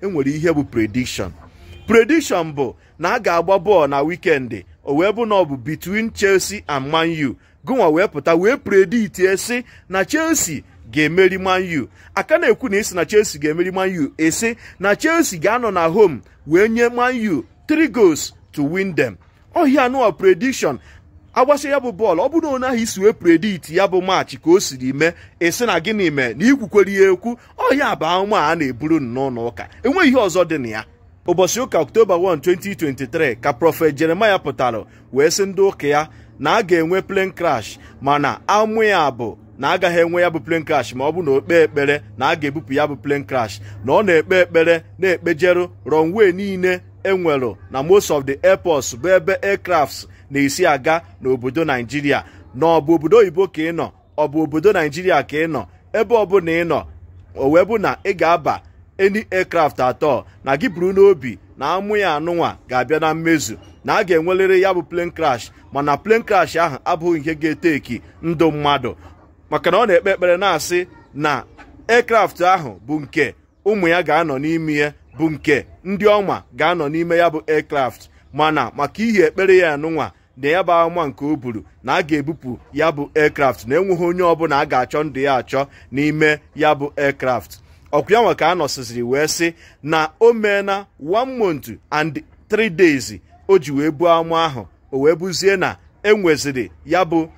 enwere ihe bụ prediction prediction bụ na a ga-agba bọọlụ na wikendi o wee bụ na ọ bụ between Chelsea and Man U gụnwa wee pụta wee predit si na Chelsea ga-emeri Man U aka na-ekwu na isi na Chelsea ga-emeri Man U esi na Chelsea ga-anọ na home wee nye Man U three goals to win them ohi nụọ prediction agbasa ya bụ bọọlụ ọ bụrụ na onye ahụ isi wee predit ya bụ maachị ka o siri mee esi na gịnị mee na ikwukwere ya ekwu ọhịa bụ anwụ a na-eburu n'ụlọ ụka enweghị ihe ọzọ dị na ya ụbọchị ụka October 1 2023 ka prọfet Jeremaya pụtara wee sị ndị ụka ya na a ga-enwe plane crash mana amụ ya bụ na agaghị enwe ya bụ plane crash ma ọ bụ na okpe ekpere na a ga-ebupụ ya bụ plane crash na ọ na-ekpe ekpere na-ekpejeru runway niile enwere na most of the airports bụ ebe aircrafts na-esi aga n'obodo naijiria na ọ bụ obodo oyibo ka ị nọ ọ bụ obodo naijiria ka ị nọ ebe ọbụla ị nọ o wee bụ na ị ga-aba eni aircraft atọ na gị buru n'obi na amụ ya anụnwa ga-abịa na mmezu na a ga enwelere ya bụ plane crash mana plane crash ahụ abụghị ihe ga-eteki ndụ mmadụ maka na ọ na-ekpe ekpere na-asị na aircraft ahụ bụ nke ụmụ ya ga-anọ n'ime ya bụ nke ndị ọma ga-anọ n'ime ya bụ aircraft mana maka ihe ekpere ya anụnwa na ya bụ nke o buru na a ga-ebupụ ya bụ aircraft na enweghị onye ọbụla a ga-achọ ndụ ya achọ n'ime ya bụ aircraft ọkụ ya nwa ka a nọsịsịrị wee sị na o na one month and three days o ji wee bụ amụ ahụ o wee buzie na enweziri ya bụ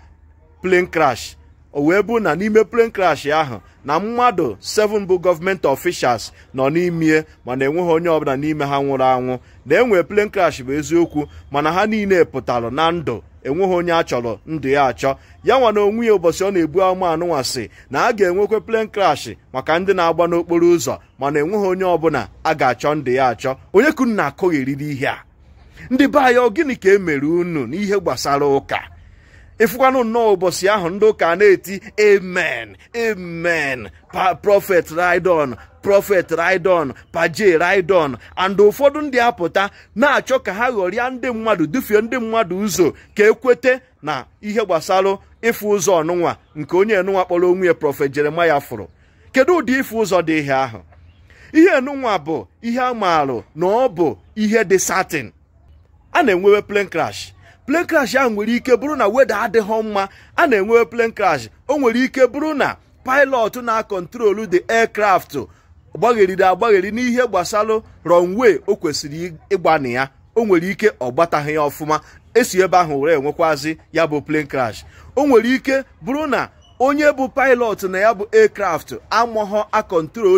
plane crash o wee bụ na n'ime plane crash ahụ na mmadụ 7 bụ gọọmenti officials nọ n'ime mana enweghị onye ọbụla n'ime ha nwụrụ anwụ na enwe plane crash bụ eziokwu mana ha niile pụtara na ndụ enweghị onye a chọrọ ndụ ya achọ ya nwa na onwe ya ụbọchị ọ na-ebu ama anụnwasị na a ga-enwekwe plane crash maka ndị na-agba n'okporo ụzọ mana enweghị onye ọbụla a ga-achọ ndụ ya achọ onye kunu na-akọghị ihe a ndị be anyị ọ gịnị ka e mere unu n'ihe gbasara ụka ịfụkwanụ nnọọ ụbọchị ahụ ndị ụka na-eti amen amen prọfet ridon prọfet ridon paje ridon and ụfọdụ ndị apụta na-achọ ka ha ghọrịa ndị mmadụ dufie ndị mmadụ ụzọ ka ekwete na ihe gbasara ịfụ ụzọ ọnụnwa nke onye enụnwa kpọrọ onwe ya prọfet jeremaya fụrụ kedu ụdị ịfụ ụzọ dị ihe ahụ ihe enụnwa bụ ihe a na ọ bụ ihe dị satin a na-enwewe plane crash plane crash ahụ nwere ike bụrụ na weda adịghị mma a na-enwe plane crash o nwere ike bụrụ na pilot na-akọntrolu the aircraft gbagheriri agbagheri n'ihe gbasalụ runway o kwesịrị ịgbana ya o nwere ike ọ gbataghị ya ọfụma esi ebe ahụ were enwekwazi ya bụ plane crash o nwere ike bụrụ na onye bụ pilot na ya bụ aircraft amụghọ a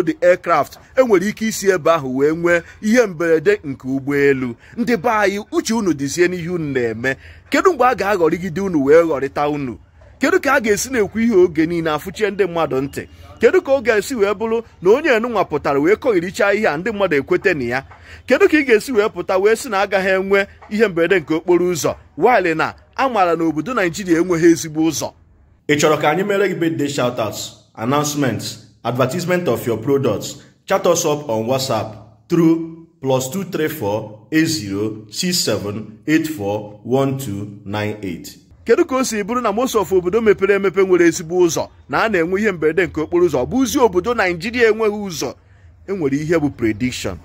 the aircraft enwere ike isi ebe ahụ wee nwee ihe mberede nke ụgbọelu ndị be anyị uche unu dịzie n'ihe unu na-eme kedu mgbe a ga-aghọrịgide unu wee ghọrịta unu kedu ka a ga-esi na-ekwu ihe oge niile afụchie ndị mmadụ ntị kedu ka ọ ga-esi wee bụrụ na onye enunwa pụtara wee kọghirichaa ihe a ndị mmadụ ekwete na ya kedu ka ị ga-esi wee pụta wee sị na agaghị enwe ihe mberede nke okporo ụzọ waịlị na a maara na obodo naijiria enweghị ezigbo ụzọ ị chọrọ ka anyị mere gị birthday shoutouts announcements advertisement of your products chat us up on whatsapp tru plus 2348067841298 kedu ka o si bụrụ na most of obodo mepere emepe nwere ezigbo ụzọ na a na-enwe ihe mberede nke okporo ụzọ bụzi obodo naijiria enweghị ụzọ enwere ihe bụ prediction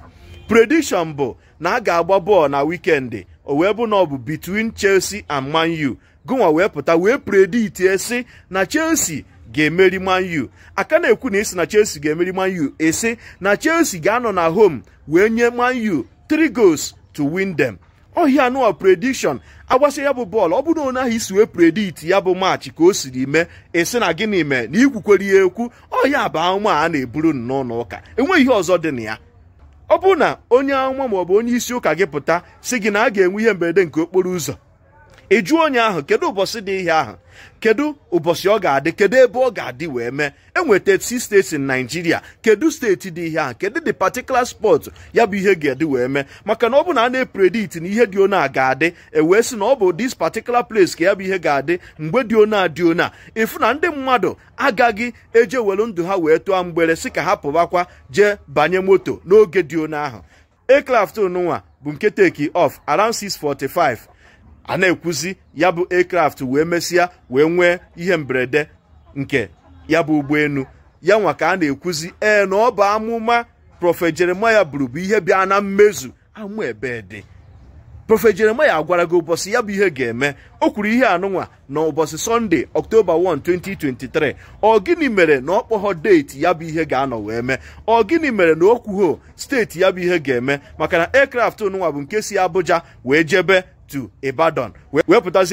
prediction bụ na a ga-agba bọọlụ na wikendi o wee bụ na ọ bụ between Chelsea and Man U gụnwa wee pụta wee preditie esi na Chelsea ga-emeri Man U aka na-ekwu na isi na Chelsea ga-emeri Man U esi na Chelsea ga-anọ na home wee nye Man U three goals to win them ohia anụwa prediction agbasa ya bụ bọọlụ ọ bụrụ onye ahụ isi wee predict ya bụ maachị ka o siri mee esi na gịnị mee na ikwukwere ya ekwu ọhịa bụ ahụma a na-eburu n'ụlọ ụka enweghị ihe ọzọ dị na ya ọ bụrụ na onye ahụma maọbụ onye isi ụka gị pụta si gị na a ga-enwe ihe mberede nke okporo ụzọ ejuo onye ahụ kedu ụbọchị dị ihe ahụ kedu ụbọchị ọ ga-adị kedu ebe ọ ga-adị wee mee enweta si steeti in Nigeria kedu steeti dị ihe ahụ kedu de patikula spot ya bụ ihe ga-adị wee mee maka na ọ bụ na a na na ihe dị ona ga-adị ewee sị na ọ bụ dis particular place ka ya bụ ihe ga-adị mgbe dị ona dị ona ịfụ na ndị mmadụ agaghị eje welu ndụ ha wee tụọ mgbere si ka ha pụbakwa jee banye moto n'oge dị ona ahụ aircraft nwa bụ nke take off around 6:45 a na-ekwuzi ya bụ aircraft wee mesịa wee nwee ihe mberede nke ya bụ ụgbọelu ya nwa ka a na-ekwuzi ee na ọ bụ amụma prọfet jeremaya bụrụ ihe bịa na mmezu amụ ebe dị prọfet jeremaya gwara gị ụbọchị ya bụ ihe ga-eme o kwuru ihe anụnwa na ụbọchị sọnde ọktoba 1 2023 ọ gịnị mere na ọ kpọghọ deeti ya bụ ihe ga-anọ wee mee ọ gịnị mere na o steeti ya bụ ihe ga-eme maka na aircraft nụnwa bụ nke si abuja wee jebe to Ibadan wee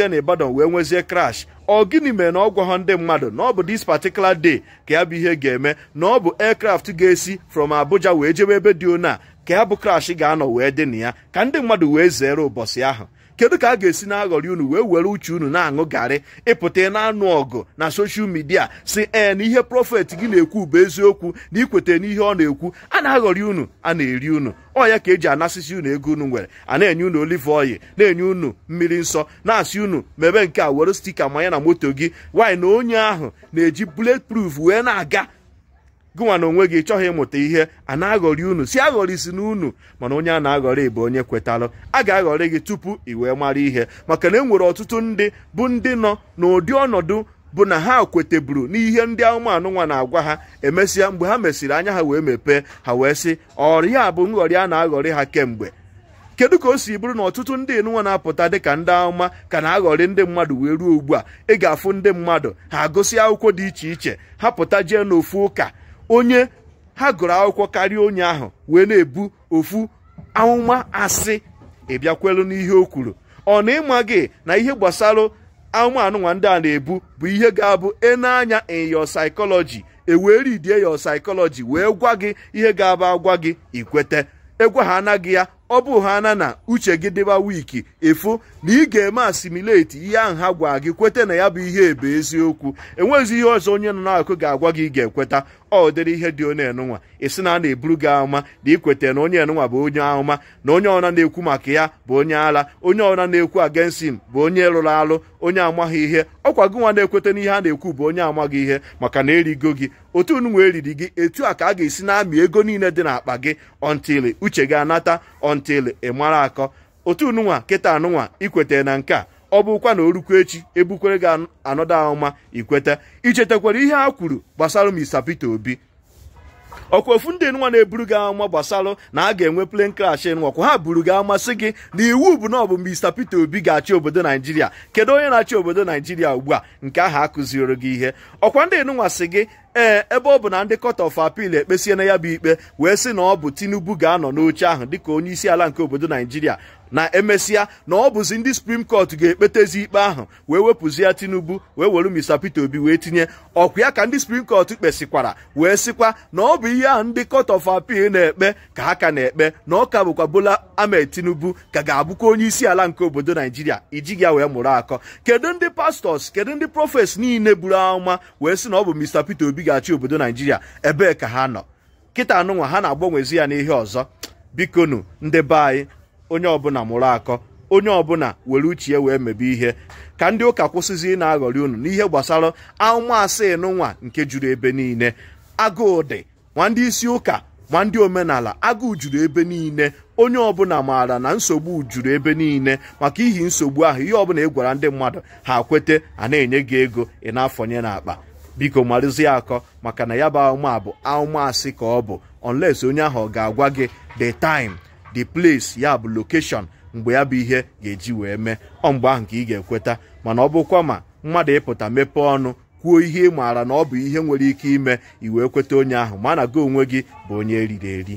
na Ibadan wee nwezie crash ọ gịnị mere na ọ gwaghọ ndị mmadụ na ọ bụ this particular day ka ya bụ ihe ga-eme na ọ bụ aircraft ga-esi from Abuja wee jebe ebe dị ona ka ya bụ crash ga-anọ wee dị na ya ka ndị mmadụ wee zere ụbọchị ahụ kedu ka a ga-esi na-aghọrị unu wee were uche unu na-aṅụ garị ịpụta na-anụ ọgụ na soshal midia si ee na ihe prọfet gị na-ekwu bụ eziokwu na na n'ihe ọ na-ekwu a na-aghọrị unu a na-eri unu ọ ya ka eji anasịsị unu ego unu nwere a na-enye unu olive oyi na-enye unu mmiri nsọ na-asị unu mebe nke a were stika manya na moto gị wanyị na onye ahụ na-eji bullet wee na-aga gụnwa na onwe gị chọghị ịmụta ihe a na-aghọrị unu si aghọrịsi na unu mana onye a na-aghọrị bụ onye kwetalụ a ga-aghọrị gị tupu i wee mara ihe maka na e nwere ọtụtụ ndị bụ ndị nọ n'ụdị ọnọdụ bụ na ha kweteburu n'ihe ndị anụmanụ nwa na-agwa ha emesịa mgbe ha mesịrị anya ha wee mepee ha wee sị ọrịa bụ nghọrị a na-aghọrị ha kemgbe kedu ka o si bụrụ na ọtụtụ ndị nụnwa na-apụta dịka ndị amụma ka na-aghọrị ndị mmadụ wee ruo ugbu a ị ga-afụ ndị mmadụ ha agụsị akwụkwọ dị iche iche ha pụta jee n'ofu ụka onye ha gụrụ akwụkwọ karịa onye ahụ wee na-ebu ofu amụma asị ịbịakwelu n'ihe o kwuru ọ na ịma gị na ihe gbasara anụmanụ ndị a na-ebu bụ ihe ga-abụ na-anya your psychology ewee ridie your wee gwa gị ihe ga-abụ agwa gị ikwete egwa ha anaghị ya ọ bụ ha na na uche gị dịba wiki efu na ị ga-eme asimileti ihe ahụ ha gwa gị kweta na ya bụ ihe ebe eziokwu enweghịzi ihe ọzọ onye nọ n'akụkụ ga-agwa gị ị ga-ekweta ọ dịrị ihe dị onye nụnwa esi na a na-eburu gị ahụma na ikweta na onye enụnwa bụ onye ahụma na onye ọna na-ekwu maka ya bụ onye ala onye ọna na-ekwu agensim bụ onye lụrụ alụ onye amaghị ihe ọkwa gị nwa na-ekweta ihe a na-ekwu bụ onye amaghị ihe maka na erigo gị otu unu eriri gị etu a ka a ga-esi na-amị ego niile dị n'akpa gị ọntili uche gị anata until ị mara akọ otu nụnwa kịta anụnwa ikwetere na nke a ọ bụkwa na orukwa echi ebukwere gị anọdụ ahụma ikweta ichetakwara ihe a kwuru gbasara Mr Peter Obi ọkwa ofu ndị nwa na-eburu gị ama gbasalụ na a ga-enwe plane crash nwakwa ha buru gị amasị gị na iwu bụ na ọ bụ Mr Peter Obi ga-achị obodo Naijiria kedu onye na-achị obodo Naijiria ugbu a nke ahụ akụzioro gị ihe ọkwa ndị nwa sị gị ee ebe ọ bụ na ndị court of appeal ekpesie na ya bụ ikpe wee sị na ọ bụ Tinubu ga-anọ n'oche ahụ dịka onye isi ala nke obodo Naijiria na emesịa na ọ bụzi ndị suprim kọt ga-ekpetezi ikpe ahụ wee wepụzie tinubu wee were mr peter obi wee tinye ọkwa ya ka ndị suprim kọt kpesịkwara wee sịkwa na ọ bụ ihe ahụ ndị kọt of apil na-ekpe ka ha ka na-ekpe na ọ ka bụkwa bola amed tinubu ka ga-abụkwa onye isi ala nke obodo naijiria ijighi ya wee mụrụ akọ kedu ndị pastọs kedu ndị prọfes niile buru amụma wee sị na ọ bụ mr peter obi ga-achị obodo naijiria ebee ka ha nọ kịta anụnwa ha na-agbanwezi ya n'ihe ọzọ bikonu ndị be anyị onye ọbụla mụrụ akọ onye ọbụla were uche ya wee mebe ihe ka ndị ụka kwụsịzi na-aghọrị unu n'ihe gbasara amụmasị nwa nke juru ebe niile agụụ dị nwa ndị isi ụka nwa ndị omenala agụụ juru ebe niile onye ọbụla maara na nsogbu juru ebe niile maka ihi nsogbu ahụ ihe ọbụla ị e gwara ndị mmadụ ha kwete a na-enye gị ego ị na-afọnye n'akpa biko marụzie akọ maka na ya bụ ahụma bụ ahụmasị ka ọ bụ unless onye ahụ ọ ga-agwa gị the time the place ya bụ lokeshọn mgbe ya bụ ihe ga-eji wee mee ọ mgbe ahụ ka ị ga-ekweta mana ọ bụkwa ma mmadụ ịpụta mepee ọnụ kwuo ihe ị maara na ọ bụ ihe nwere ike ime iwee kweta onye ahụ ma na gị onwe gị bụ onye eriri eri